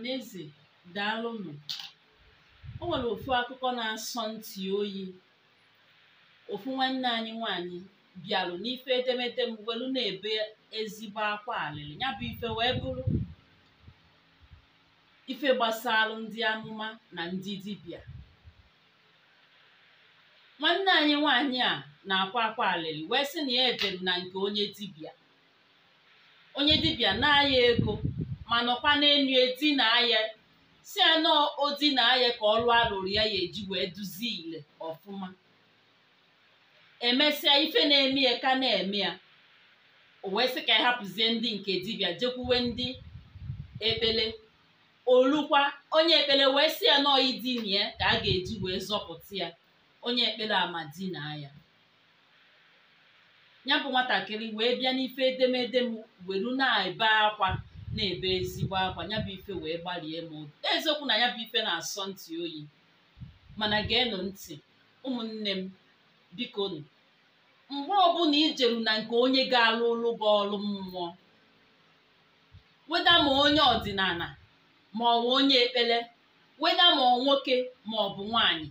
ọhaneze daalụnụ o nwere ofu akụkọ na-asọ ntị oyi ofu nwanne anyị nwanyị bịalụ n'ife edemede m welu na-ebe ezigbo akwa alịlị ya bụ ife wee bụrụ ife gbasalụ ndị amụma na ndị dibia. nwanne anyị nwanyị a na-akwa akwa alịlị wee sị na ya edere na nke onye dibịa na-aya ego ma nọkwa n'enu edina ya si anọ odina ya ka ọrụ arụrụ ya ya eji wee duzie ile ọfụma emesịa ife na-eme ya ka na-eme ya o wee sị ka ya hapụzie ndị nke dibịa jekwuwe ndị ekpele olukwa onye ekpele wee sị ya nọọ idina ya ka a ga-eji wee zọpụta ya onye ekpere amadina ya ya bụ nwatakịrị wee bịa n'ife edemede m weru na-ebe akwa na-ebe ezigbo akwa ya bụ ife wee gbalie m obi eziokwu na ya bụ ife na-asọ ntị oyi mana geenụ ntị ụmụnne m biko nụ mgbe ọbụla ijeru na nke onye ga-alụ ụlụ bụ ọrụ mmụọ weda ma onye ọdịnala ma ọ bụ onye ekpere weda ma ọ nwoke ma ọ bụ nwaanyị.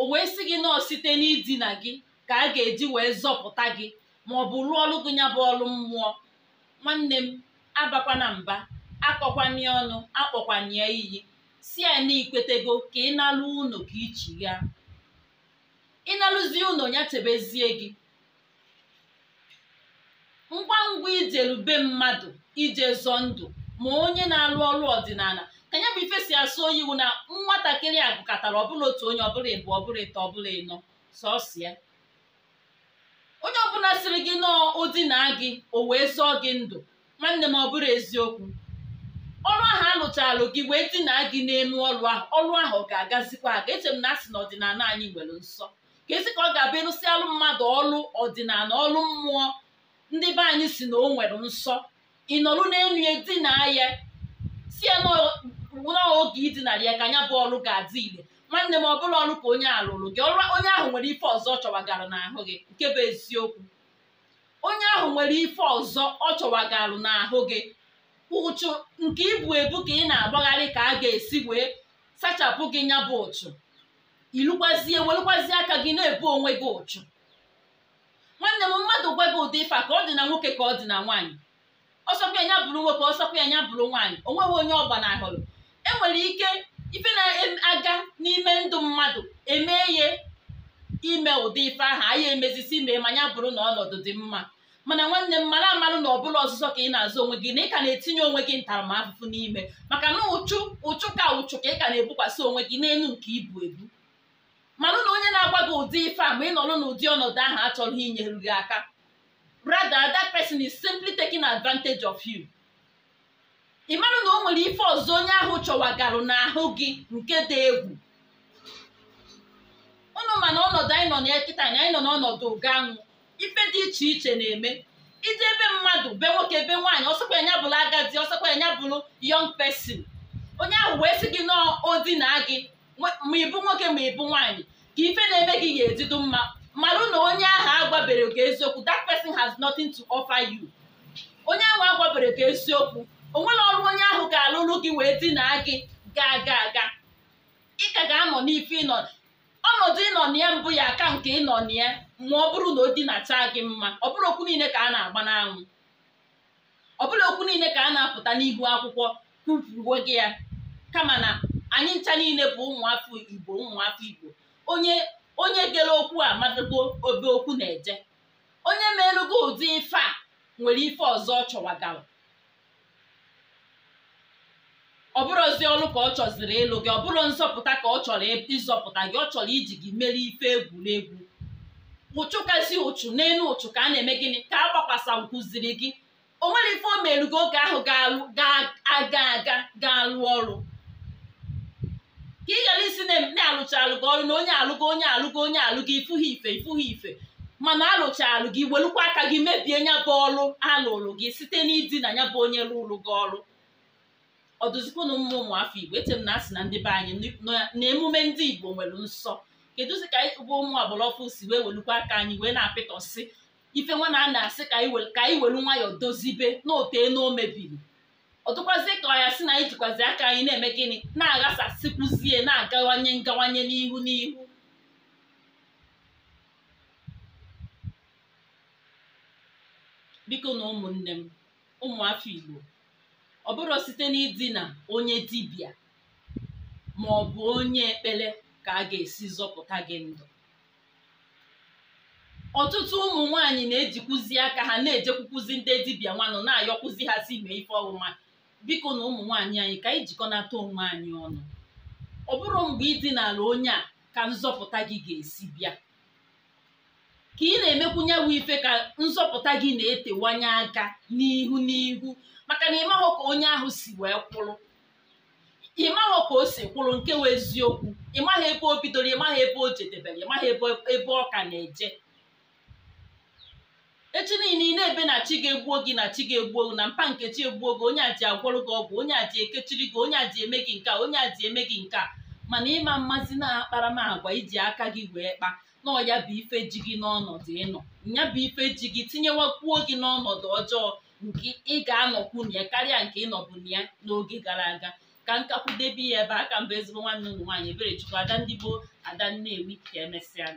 o wee sị gị nọọ site n'idina gị ka a ga-eji wee zọpụta gị ma ọ bụ rụọ gị ya bụ ọrụ mmụọ nwanne m abakwana mba akọkwanye ọnụ akpọkwanye iyi si na ikwetego ka ịnalụ ụnụ ka ichigha ịnalụzi ụnụ ya chebezie gị ngwa ngwa ijelube mmadụ ije zọọ ndụ ma onye na-alụ ọrụ ọdịnala ka ya bụ ife si asụ onye iwu na nwatakịrị a gụkọtara ọbụla otu onye ọbụla ịbụ ọbụla ịtọ ọbụla ịnọ sọsọ ya onye ọbụla siri gị nọọ odina gị o wee zọọ gị ndụ nwanne m ọ bụrụ eziokwu ọrụ ahụ alụchalụ gị wee dina gị n'elu ọrụ ahụ ọrụ ahụ ga-agazikwa aga eche m na asị na ọdịnala anyị nwere nsọ ka esi ka ọ ga-abịa alụ mmadụ ọrụ ọdịnala ọrụ mmụọ ndị be anyị si na o nwere nsọ ị nọrụ n'elu ya dina ya si ya n'oge idinara ya ka anya bụ ọrụ ga-adị ile nwanne m ọ bụrụ ọrụ ka onye alụrụ gị ọrụ onye ahụ nwere ife ọzọ chọwagara n'ahụ gị nke bụ eziokwu onye ahụ nwere ife ọzọ ọ chọwagalụ n'ahụ gị ụchụ nke ibu ebu ka ị na-agbagharị ka a ga-esi wee sachapụ gị nya bụ ụchụ ilukwazie welukwazie aka gị na-ebu onwe gị ụchụ nwanne m mmadụ gwa gị ụdị ife ka ọ dị na nwoke ka ọ dị na nwaanyị ọsọkwa ya bụrụ nwoke ọsọkwa ya bụrụ nwaanyị o nweghị onye ọgbanahụrụ enwere ike ife na-aga n'ime ndụ mmadụ emee ya ime ụdị ife ahụ anya emezisi mee manya bụrụ na ọnọdụ dị mma mana nwanne m mara amalụ na ọbụla ọzụzọ ka ị na-azụ onwe gị na ị ka na-etinye onwe gị ntaramahụhụ n'ime maka na ụchụ ụchụ ka ụchụ ka ị ka na-ebukwasị onwe gị n'elu nke ibu ebu manụ na onye na-agwa gị ụdị ife a ma ị nọrọ n'ụdị ọnọdụ ahụ achọrọ inyeru gị aka Brada that person is simply taking advantage of you ị marụ na o nwere ife ọzọ onye ahụ chọwagarụ n'ahụ gị nke dị egwu bụrụ na ọnọdụ anyị nọ na kịta anyị nọ n'ọnọdụ ụga anwụ ife dị iche iche na-eme ije ebe mmadụ be nwoke be nwaanyị ọsọkwa nya bụrụ agadi ọsọkwa nya bụrụ yọng pesin onye ahụ wee sị gị na odina gị ma ịbụ nwoke ma ịbụ nwaanyị ka ife na-eme gị ga-edido mma marụ na onye ahụ agwabere gị eziokwu that person has nothing to offer you onye ahụ agwabere gị eziokwu onwere ọrụ onye ahụ ga-alụrụ gị wee dina gị gaa gaa gaa ị ka ga-anọ n'ife ịnọ ọnọdụ ịnọ na ya mbụ ya aka nke ịnọ na ya ma ọ bụrụ na o dinata gị mma ọ bụrụ okwu niile ka a na-agba n'anwụ ọ bụrụ okwu niile ka a na-apụta n'ihu akwụkwọ kwupuo gị ya kama na anyị ncha niile bụ ụmụafọ igbo ụmụafọ igbo onye onye gere okwu a madago obe okwu na-eje onye merugo ụdị ife a nwere ife ọzọ ọ chọwagara ọ bụrụzi ọlụ ka ọ chọziri ịlụ gị ọ bụrụ nzọpụta ka ọ chọrọ ịzọpụta gị ọ chọrọ iji gị mere ife egwuregwu ụchụ kasị ụchụ n'elu ụchụ ka a na-eme gịnị ka a gbakwasa nkụziri gị o nwere ife o gị oge ahụ ga-aga aga ga-alụ ọrụ ka ị gara isi na-alụcha alụgo ọrụ na onye alụgo onye alụgo onye alụgo ifughi ife ifughi ife mana alụ gị welukwa aka gị mebie nya bụ ọrụ alụrụ gị site na ya bụ onye ụlụ gị ọrụ ọdụzikwunu mma ụmụafọ igbo eche na asị na ndị be anyị na emume ndị igbo nwere nsọ kedụzi ka bụ ụmụ agbara si wee welukwa aka anyị wee na-apịtọsị ife nwa na a na-asị ka anyị welu nwayọọ dozibe na otee na o mebiri ọtụkwazi ka ya sị na anyị jikwazi aka anyị na-eme gịnị na-aghasasịkwuzie na-agawanye ngawanye n'ihu n'ihu biko na ụmụnne m ụmụafọ igbo ọ bụrụ site n'idina onye dibịa ma ọ bụ onye ekpere ka a ga-esi zọpụta gị ndụ ọtụtụ ụmụ nwaanyị na-ejikwuzi aka ha na-ejekwukwuzi ndị dibịa nwanụ na-ayọkwuzi ha si mee ife ọwụma biko na ụmụ nwaanyị anyị ka anyị jikọnata onwe anyị ọnụ ọ bụrụ mgbe ịdị n'ala onye a ka nzọpụta gị ga-esi bịa ka ị na-emekwunye ife ka nzọpụta gị na-etewanye aka n'ihu n'ihu maka na ịmahụ ka onye ahụ si wee kwụrụ ịmahụ ka o si kwụrụ nke wee eziokwu ịmaghị ebe o bidoro ịmaghị ebe o jedebere ịmaghị ebe ọ ka na-eje echi niile ị na-ebe na chi ga-egbuo gị na chi ga-egbuo gị na mpa nkechi egbuo gị onye a ji agwọrọ gị ọgwụ onye ji ekechiri gị onye a ji eme gị nke a onye ji eme gị nke a mana ịma mmasị na-akparamagwa iji aka gị wee kpa nọọ ya bụ ife ji gị n'ọnọdụ ịnọ ya bụ ife ji gị tinyewakwuo gị n'ọnọdụ ọjọọ nke ị ga-anọkwu na ya karịa nke ịnọbụ na ya n'oge gara aga ka debe ya ebe aka mba ezigbo nwanne ụmụ nwaanyị ebere chukwu ada ndị gboo ada nnewi ka emesịa